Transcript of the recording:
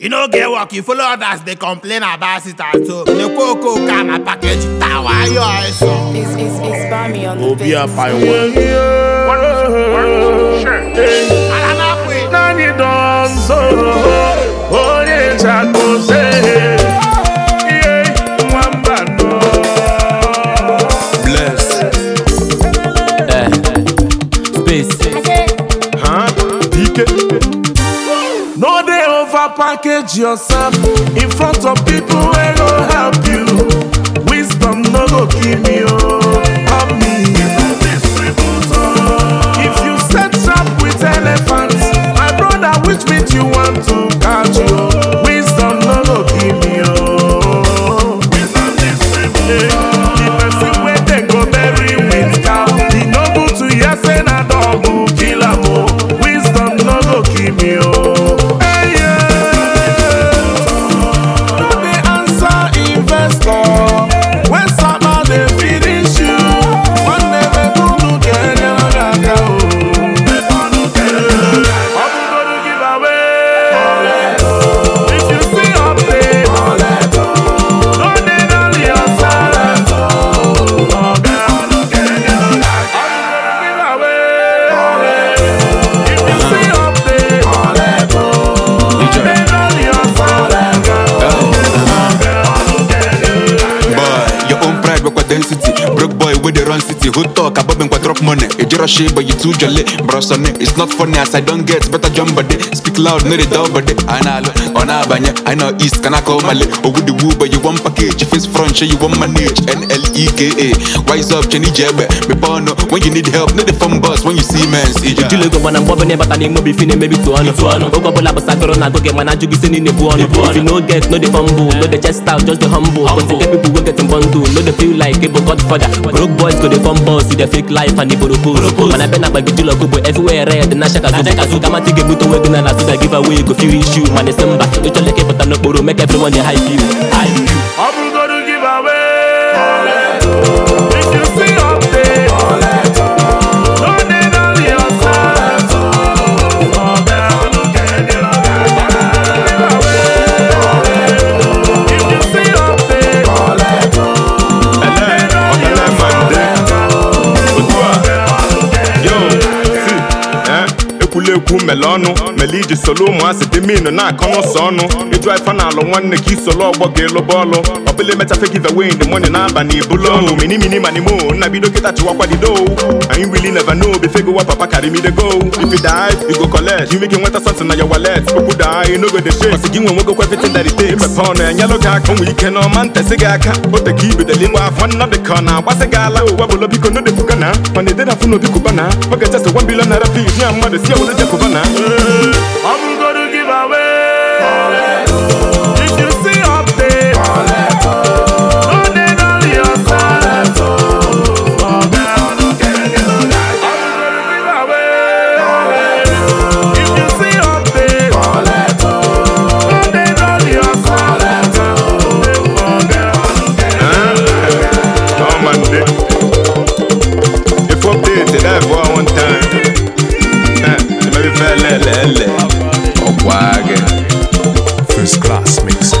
e no get work you follow others dey complain about it at home dey kwo okooko and na package tawa ayo eso. obi apaiwo. alamapu. nani don sọ̀rọ̀. package yourself in front of people wey go help you wisdom no go kill me o. Oh. city who talk about me drop money e rush but you too jolly bro sonny it's not funny as i don get better jump body speak loud no dey dull body analo ona abanye i know east kana call male oh, ogudiwu but you wan package face front shey you wan manage nleka wise up chenny jebe mepe ọnụ when you need help no dey form bus when you see mens ijijile na agụ gị mana bụ ọnụ if you no get no dey fumble no dey chest out just humble get bomb see the fake life and the mana bena gbagi jula kobo everywhere red na shaka zuka ga ebuto wego na na so that give away go feel issue mana simba ịchọleke n'okporo make everyone dey hype ekwu mele ọnụ mele iji solo ụmụasị dị minu na-akọ n'ụsọ ọnụ ịdụ ife na-alụ nwanne ka isolo ọgbọ ga-elụba ọlụ ọbụla emecha give wey ndị mọni na-aba na ibulu ọnụ minimini manimo nna bido kịta chịwakwadido anyị wili neva no befego wa papa karimidego if you dive you go collect you make you nweta something na your wallet okwu daa enogo de shake gị nwe nwogo kwa everything that ọ na-enyelụ gị aka nwe ike n'ọma ntesi gị aka o teka ibedele igba afọ nnọdụ ka ọ na-agbasị gị ala ụwa bụlo biko nọdụ ebuka na mana edena afụ n'obi kụbana oge chesa gwa mbilo nara pif ya mmadụ si obodo jekụbana lele ọkwa gị first class mix